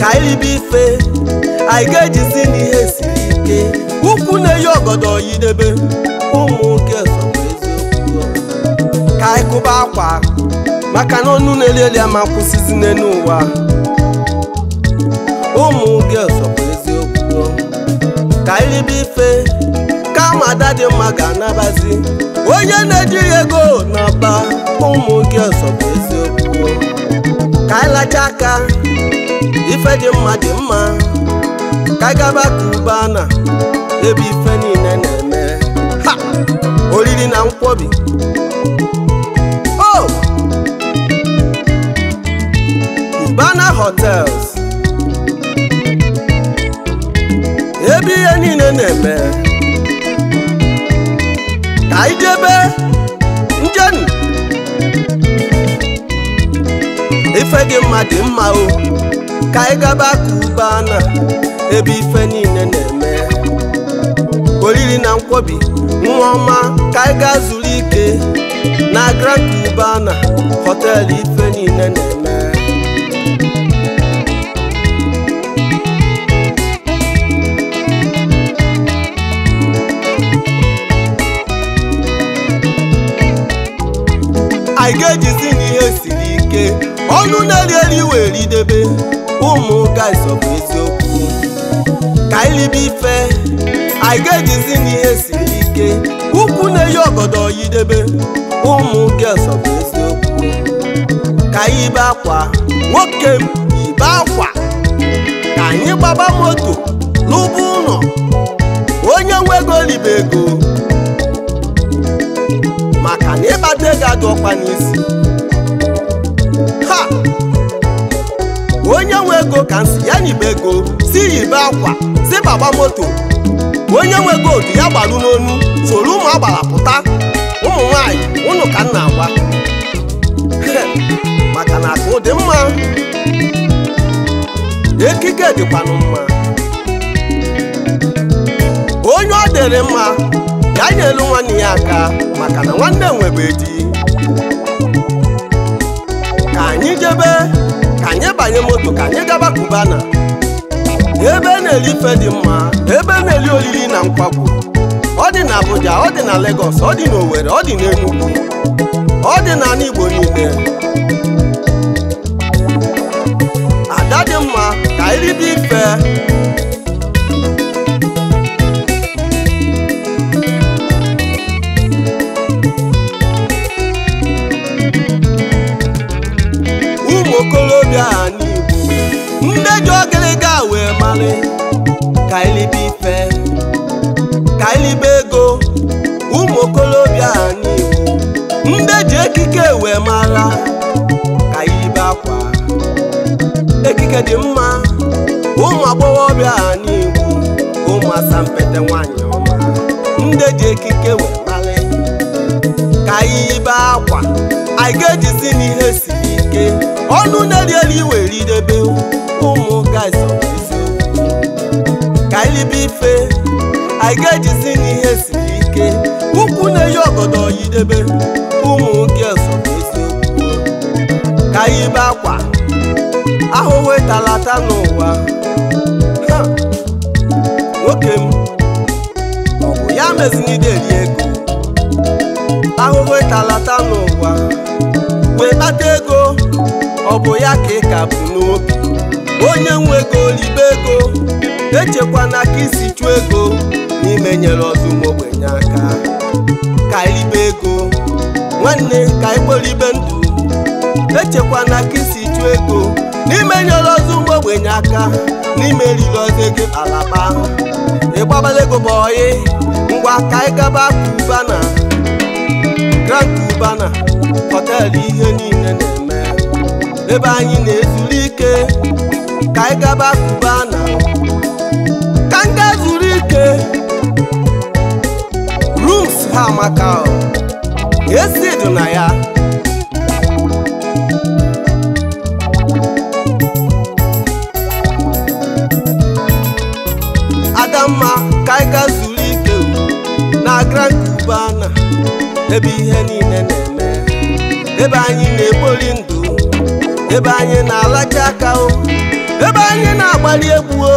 ka bife, ife jisi ni ejizi n'ihe siri ike ukwu na-eyi ọgọdọ yidebe ụmụ nwoke ka anyị kụba akwa maka na ọnụ na-eli eli ama kwụsịzi n'elu ụwa ụmụ nwoke bụ eziokwu ka iribe ife kama ada dị mma ga-anabazi onye na-ejighị ego na ụmụ nwoke bụ eziokwu ka anyị aka ife dị mma dị mma ka anyị gaba ka ube ana ebe ife niile na-eme ha oriri na nkwobi o oh! Cubana Hotels ebe ihe niile na-eme ka anyị jebe ofe gị mma dị mma o ka anyị gaba Kuba na ebe ife niile na-eme oriri na nkwobi nwa ọma ka anyị gaa zuru ike na Grand na họteelụ ife niile na-eme anyị ga-ejizi ọnụ na-eri eri wee ridebe ụmụ ka anyị ife anyị ga-ejizi n'ihe siri ike ukwu na-eyi ọgọdọ yidebe ụmụ ụka ịsọ bụ ka anyị ibe akwa nwoke m akwa ka anyị gbaba moto lụba ụlọ onye nwego ego ego maka na ịkpata ego adụ ọkpa n'isi ego ka si ya nyibe ego si yibe akwa si baba moto onye nwe godu ya gbaru n'onu soro ụmụ agbara pụta ụmụ nwanyị ụnụ ka nna agwa maka na akụ dị mma ekike dịkwanụ mma onye ọ dịrị mma ya nyelu nwanne ya aka maka na nwanne nwebe di ka anyị jebe ka anyị banye moto ka anyị gaba kubana ebe na-eli ife dị mma ebe na-eli olili na nkwagwu ọ dị na Abuja ọ dị na Lagos ọ dị na ọ dị na Enugu ọ dị na Igbo niile ada dị mma ka anyị ife ndị ji ogịlịga wee malị ka elibe ife ka elibe ego ụmụ okolobịa n'Igbo ndị ji ekike wee mara ka elibe akwa ekike dị mma ụmụ agbọghọbịa n'Igbo ụmụ asampete nwanyị ọma ndị ji ekike wee malị ka elibe akwa anyị ga-ejizi n'ihe si ọnụ na-erieri iwe ridebe ụmụ oh, guys ka anyị libe ife anyị ga-ejizi n'ihe siri ike ukwu na-eyi ọgọdọ yidebe ụmụ girls ka anyị be akwa ahụhụ ịtalata n'ụwa nwoke m ọ bụ ya mezina ide eri ego ahụhụ ịtalata n'ụwa wee kpata ego ọ bụ ya ka ị ka bụ n'obi onye nwe ego libe ego echekwana ka isi chụọ ego n'ime nyere ọzọ ụmụ ogbenye aka ka ịlibe ego nwanne ka ịkpọlibe ndụ echekwana ka isi chụọ ego n'ime nyere ọzọ ụmụ ogbenye aka n'ime eriri ọzọ ego alaba ịgbabala ego bụ oyi ngwa ka ị gaba kubana grand kubana họteelụ ihe niile na ebe anyị na-ezuru ike ka anyị gaba Cubana ka nga zuru ike rums ha maka esi na ya adamma ka anyị ga zuru ike na Grand na ebe ihe niile na-eme ebe anyị na-ekpori ndụ ebe anyị na-alacha aka o ebe anyị na-agbali egbuo.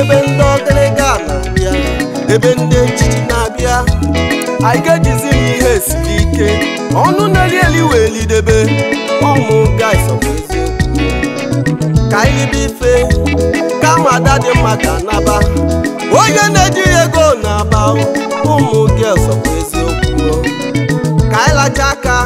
ebe ndị ọgịrịga na-abịa ebe ndị echichi na-abịa anyị ga-ejizi m ihe siri ike ọnụ na-eri eli wee lidebe ụmụ guys bụ eziokwu ka anyị bụ ife kama ada dị mma ka naba onye na eji ego na-aba ụmụ girls bụ eziokwu ka anyị lacha aka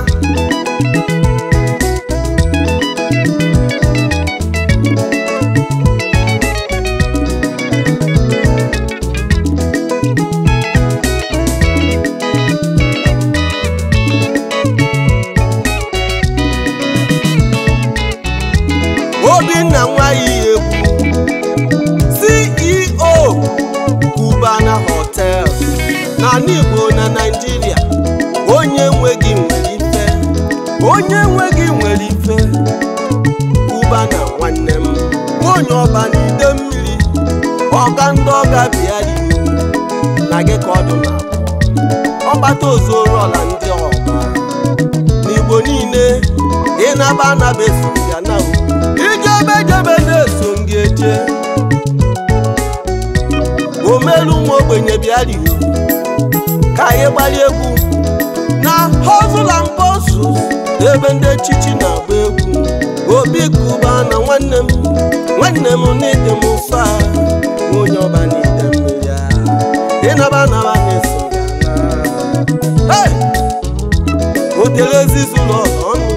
ozuoru ọla ndị ọma n'igbo niile ịnaba anaba eso ya na ijebe jebe na-eso gị eje omelu nwa ogbenye bịarigo ka anyị gbalị egwu na hozula mposu ebe ndị echichi na-agba egwu obi kuba na nwanne m nwanne m n'ide m ụfa, onye ọba n'ide m ya ịnaba otelezizụlọ ọnụ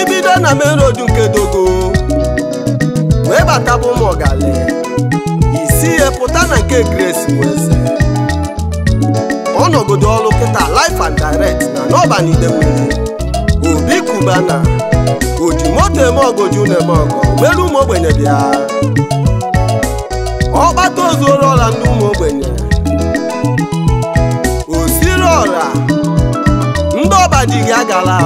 ibido na main nke dogo wee bata bụ ụmụ ọgali isi ya pụta na nke Grace Nweze ọnọgodo ọrụ kịta life and direct na n'ọbanide obi kubana oji moto eme ogoju na-eme ọgọ ụmụ ogbenye bịa ọkpata ozuoru ọla ụmụ ogbenye ọbadiga agala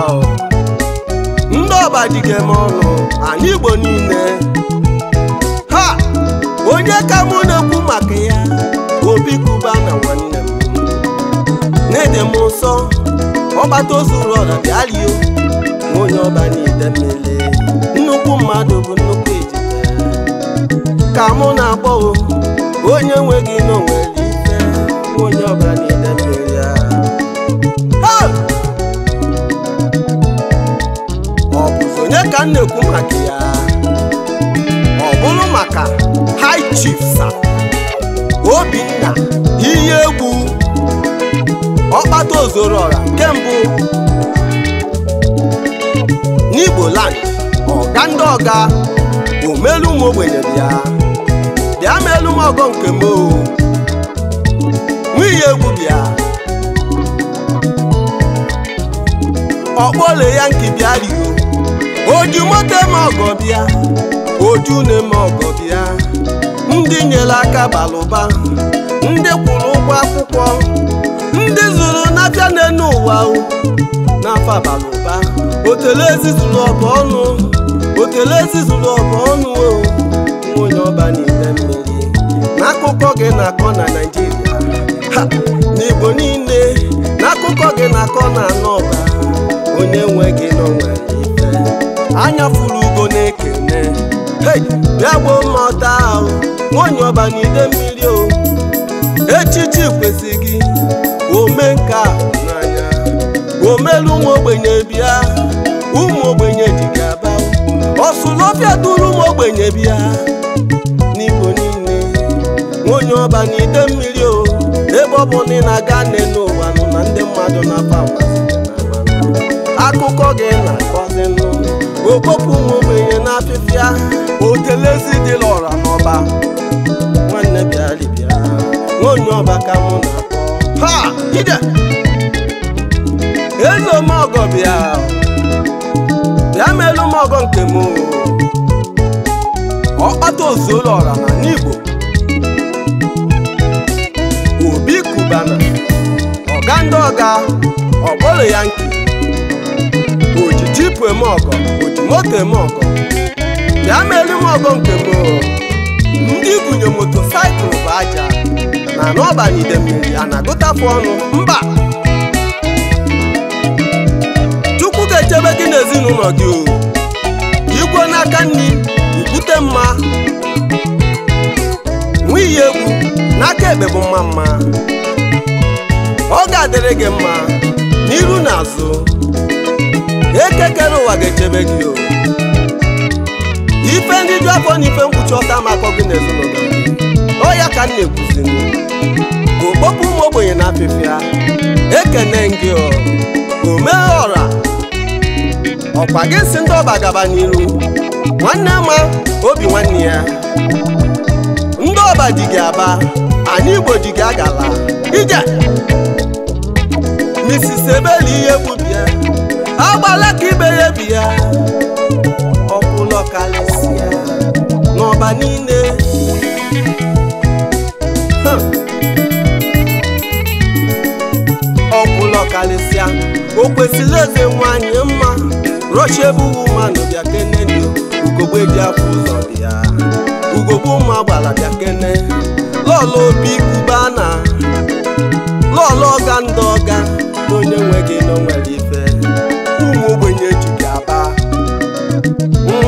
ndị ọbadiga m ọnụ anyị igbo niile ha onye ka mụ na-ekwu maka ya obi kuba na nwanne m na-ede m nsọ ọgbata ozu ụlọ na onye ọba niile mmiri nnukwu mmadụ bụ nnukwu ejide ka mụ na-akpọ onye nwe gị n'onwe onye ọba ka na-ekwu maka ya ọ bụrụ maka high chiefs obinna ihe egwu ọkpata ozoro ọra nke mbụ n'igbo land ọga ndị ọga omelu ụmụ ogbenye ya bịa melu m ọgọ nke m nwunye egwu bịa ọkpọle ya nke bịa oju moto eme ọgọ bịa oju na-eme ọgọ bịa ndị nyere aka balụba ndị kwụrụ ụgwọ akwụkwọ ndị zụrụ na n'elu ụwa n'afọ balụba otele ezi zụrụ ọba ọnụ otele ezi zụrụ ọba ọnụ nwunye ọba n'ite mmiri n'akụkọ gị na-akọ na Naịjirịa n'Igbo niile n'akụkọ gị na-akọ na anọba, onye nwe gị n'onwe anya fụrụ ugo na-ekene bịa gboo mma ọta ahụ nwanyị ọba n'ide mmiri o echichi kwesị gị ome nke a n'anya omelu ụmụ ogbenye bịa ụmụ ogbenye ji gị aba ọsụlọbịa duru ụmụ ogbenye bịa n'igbo niile nwanyị ọba n'ide mmiri o ebe ọ bụ na ị na-aga nne n'ụwa nọ na ndị mmadụ na-aba akụkọ gị na-akọzinụ okpopụ nwa na n'afịfịa otelezi dị lọra n'ọba nwanne bịalibịa nwaonye ọba ka mụ na ha ide elu m ọgọ bịa bịa elu m ọgọ nke m ọkpata ozuolọra na n'igbo obi kubana ọga ndị ọga ya nke ojiji pụem ọgọ moto eme ọgọ bịa melu m ọgọ nke gboo ndị igwunye moto bụ aja na n'ọba ide idemmiri a na-agụtafụ ọnụ mba chukwu ga-echebe gị n'ezinụlọ gị igwe n'aka nri ibute mma nwiyi egwu n'aka ekpe bụ mma mma ọ ga-adịrị gị mma n'iru na azụ obere ụwa ga-echebe gị o ife ndị ju afọ na ife mkpuchi ọta makọ gị na ezinụlọ ọ ya ka m na-ekwuzi okpokpu ụmụ ogbenye na afịfịa ekene gị omee ọra ọkwa gị si ndị ọba gaba n'iru nwanne ma obi nwanne ya ndị ọba dị gị aba anyị igbo dị gị agala ije Mrs. Ebeli ihe gbubi agbala ka ibe ya ebi ya ọkwụlọ kalịsịa n'ọba niile ọkwụlọ kalịsịa o kwesịrị eze nwanyị mma rochie bụghị mmanụ bịa kene dị ugogbe dị afọ ụzọ dị ya ugogbe ụmụ agbala bịa kene lọlọ obi kubana lọlọ ọga ndị ọga na onye nwe gị na onwere ife ogbenye jiri aba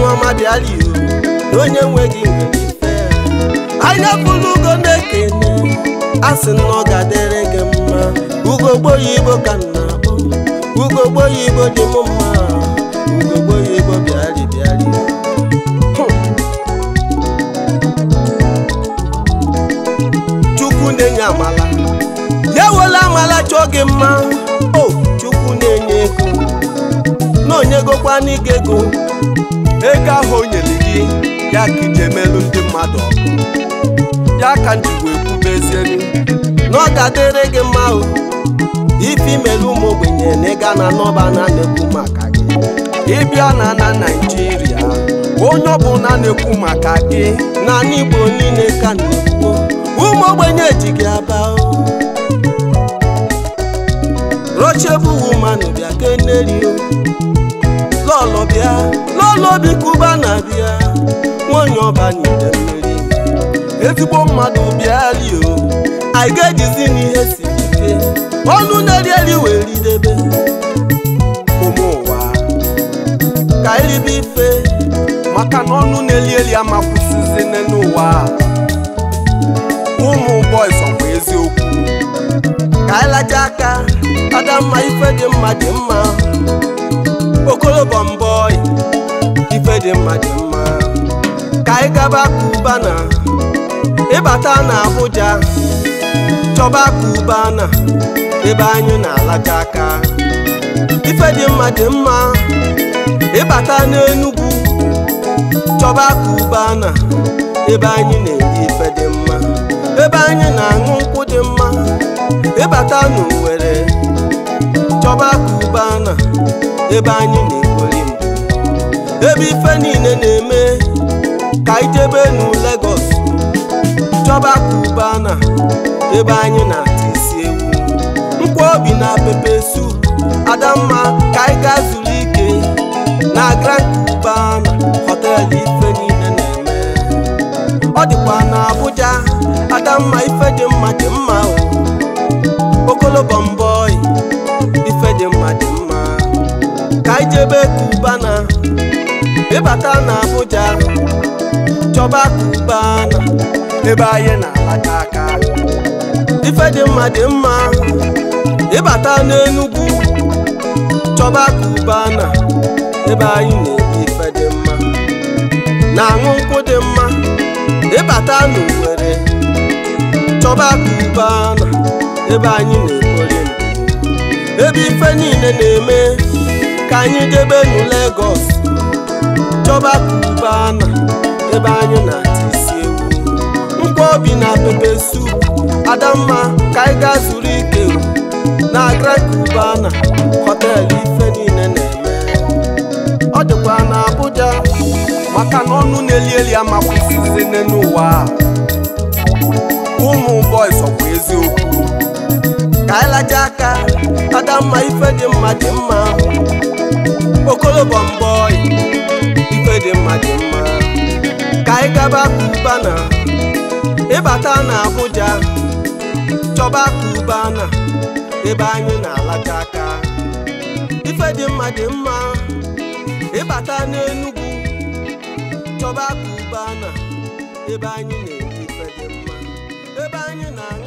nwa madiala iwu na onye nweghị ife anya pụrụ ugo na-ekene a sị na ọ ga-adịrị gị mma ugogbo oyibo ka m na-akpọ ugogbo oyibo dị m mma ugogbo oyibo bịarị bịarị chukwu na-enye amala ya wela amala chọọ gị mma o oh, chukwu na-enye ego na onyegokwana ike ego ego ahụ o nyere gị ya ka ije melụ ndị mmadụ ọkụ ya ka m ji wee kwubezielu na ọ ga-adịrị gị mma ife imelu ụmụ ogbenye na ịga na nọba na na-ekwu maka gị ịbịa na na Naịjirịa onye ọbụ na-ekwu maka gị na Igbo niile ka na-ekwu ụmụ ogbenye ji gị aba rochebu woman keneri o lọlọbịa lọlọbi kuba na bịa nwanyị ọba n'ide mmeri ezigbo mmadụ bịali o anyị ga-ejizi n'ihe siri ike ọnụ na-erieri wee ridebe ụmụ ụwa ka iribe ife maka na ọnụ na-elieli amakwụsizi n'ụwa Umu boys ka anyị laja aka adamma ife dị mma dị mma okolobo mbọị ife dị mma dị mma ka anyị gaba kubana ịbata na Abuja chọba kubana ebe anyị na-alaja aka ife dị mma dị mma ịbata n'enugwu chọba kubana ebe anyị na-eri ife dị mma ebe anyị na-aṅụ nkwụ dị mma ịbata n'Owerri chọba na ebe anyị na-ekweri ebe ife niile na-eme ka ijebe nu Lagos chọba na ebe anyị na-ata isi ewu mkpụ obi na pepe sup adamma ka anyị zuru ike na Grand na họtel ife niile na-eme ọ dịkwa na Abuja ada mma ife dị mma dị mma okolobo mbọị ife dị mma dị mma ka ijebe kubana ịbata na Abuja chọba kubana ebe anyị na-alata aka ife dị mma dị mma ịbata n'enugwu chọba kubana ebe anyị na-ebi ife dị mma na-aṅụ nkwụ dị mma ịbata n'Owerri chọba akụkọ ebe anyị na-ekpori ebe ife niile na-eme ka anyị debe nu Lagos chọba akụkọ ebe anyị na-ata isi egwu mkpa obi na pepe sup adamma ka anyị gaa zuru ike na na họteelụ ife niile na-eme ọ dịkwa na abụja maka na ọnụ na-eli eli amakwụsịzi n'ụwa ụmụ boys ọkwa eziokwu ka anyị laja aka mma ife dị mma dị mma okolobo mbọị ife dị mma dị mma ka anyị gaba kubana ịbata na Abuja chọba kubana ebe anyị na-alaja aka ife dị mma dị mma ịbata n'Enugu chọba kubana ebe anyị na banho na